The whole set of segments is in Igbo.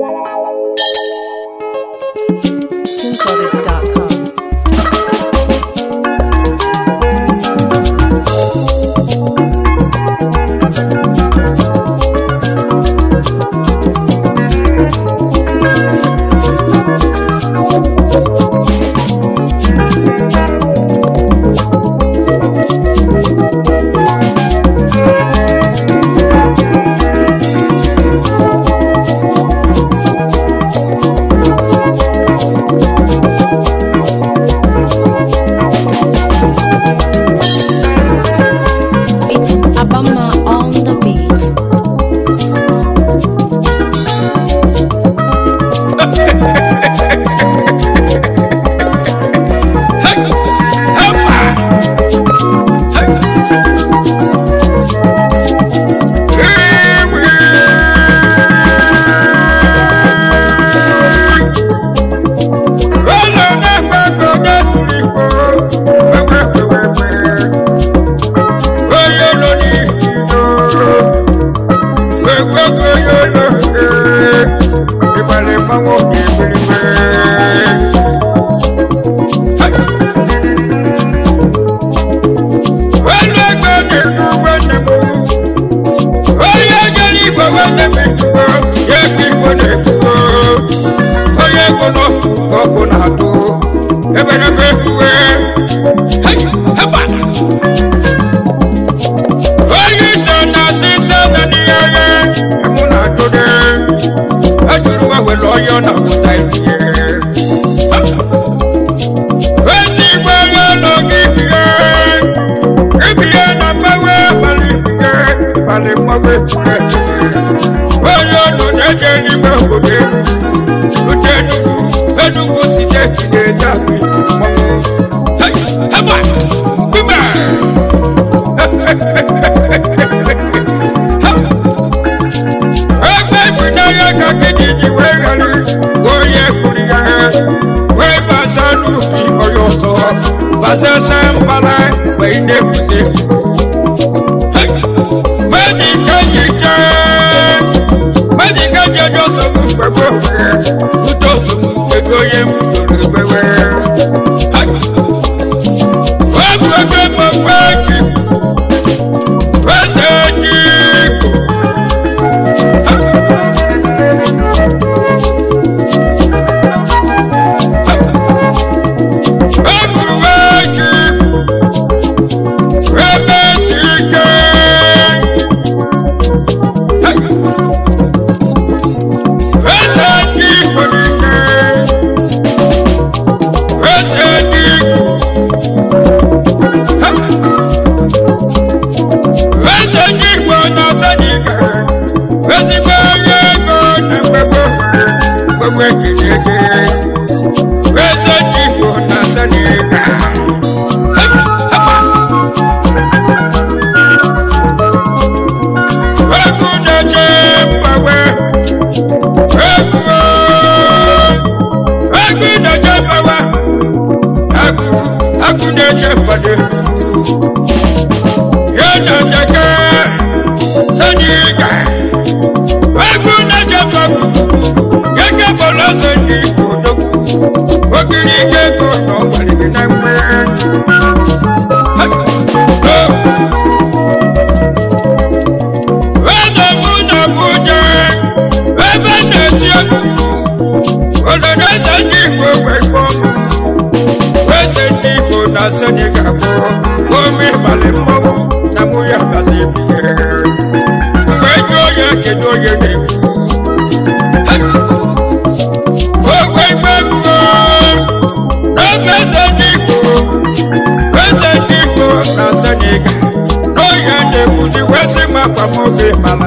Música mana mgbanwe chineke onye ọnụ na-eje n'ime obodo elu otu enugwu enugwu steeti na-eje akụ ebe ifunanya ka gịnị ji onye m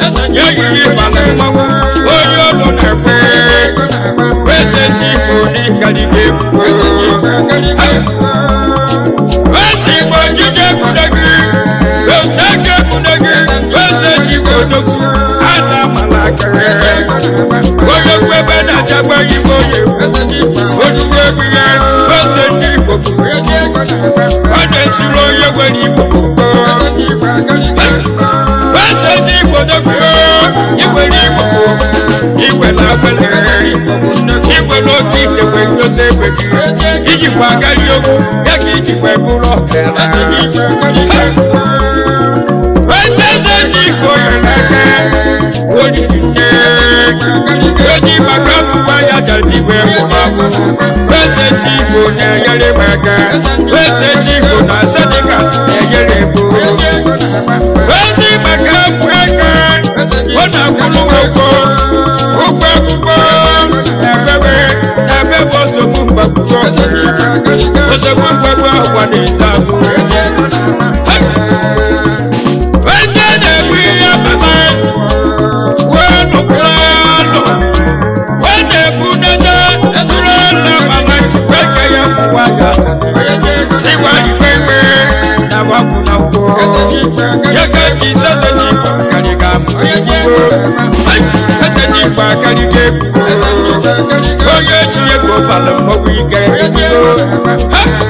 Eze ndị na na-ekwe eze ndị Igbo n'ịkarịrị egwu eze Igbo njije ekwune gị eke ekwune ndị Igbo na-amala aka onye ebe na-achakwa igbo onye ozugbo egwu ndị Igbo ọ na-esuru onye nwere Igbo ijikwa agadi okwu ya ka ijikwa bụrụ ọkara ndị igbo n'aka maka akwa na-ezi afọ ihe mmemesi wee nụkwara anụ wee na-egbu dede ezuru na mmanasi wee ka ya kwụwa ya siwa na ike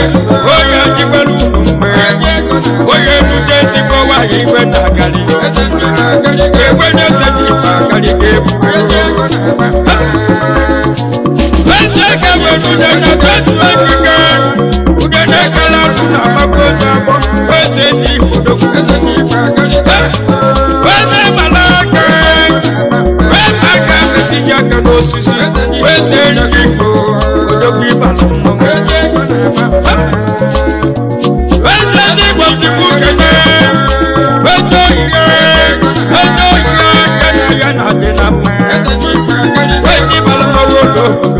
onye jikwara ugwu mgbe onye igwe eze na na eze ndị eze onye oyi ya ya na ya na adị na mma onye bara mmanwụ ụlọ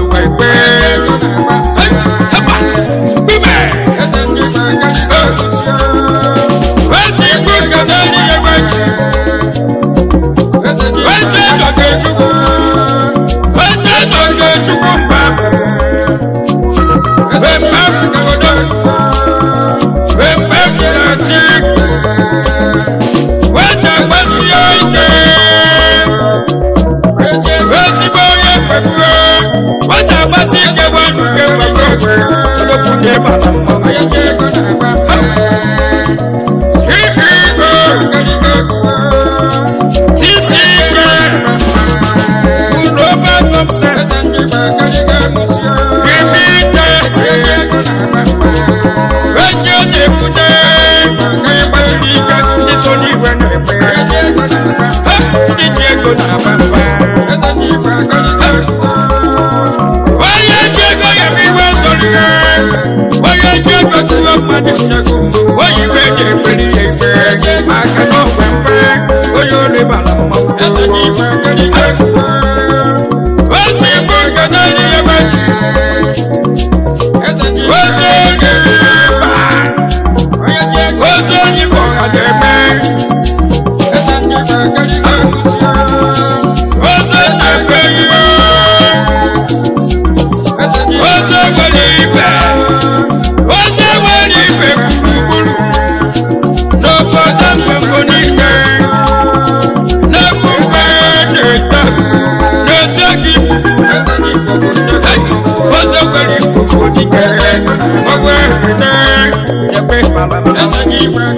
That's a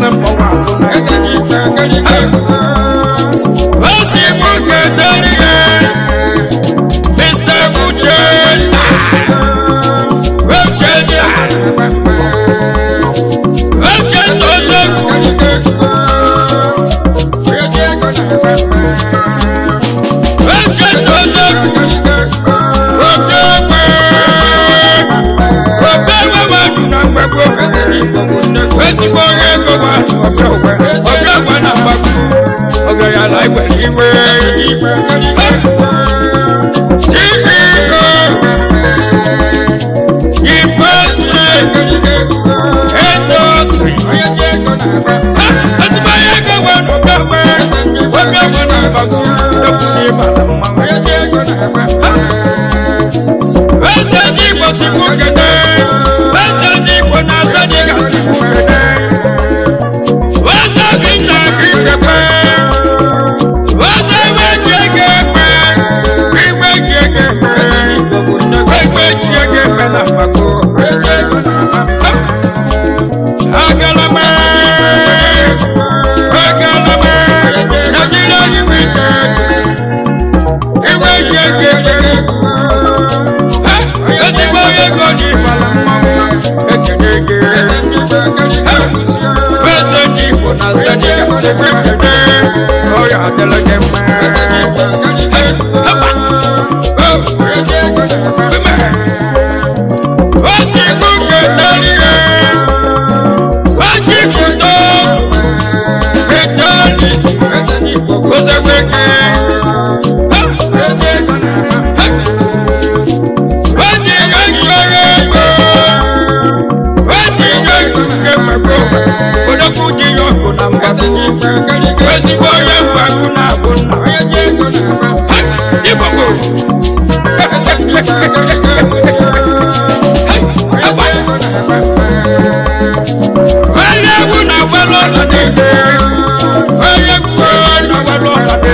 na mkpọwa eze gị ikpe ekere ikpe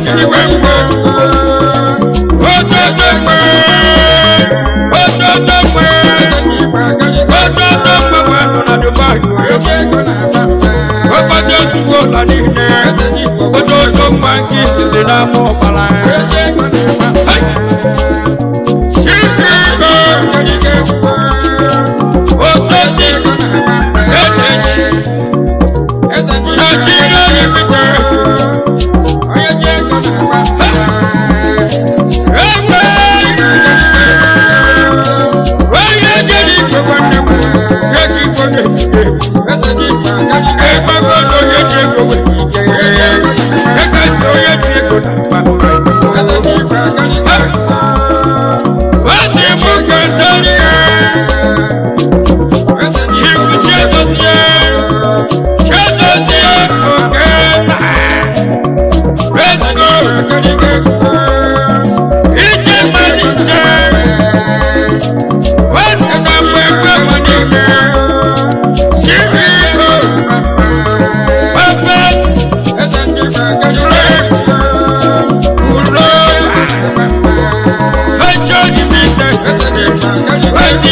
jiri wee mgbe ododo mgbe ododo mgbe ododo mgbe ụlọ niile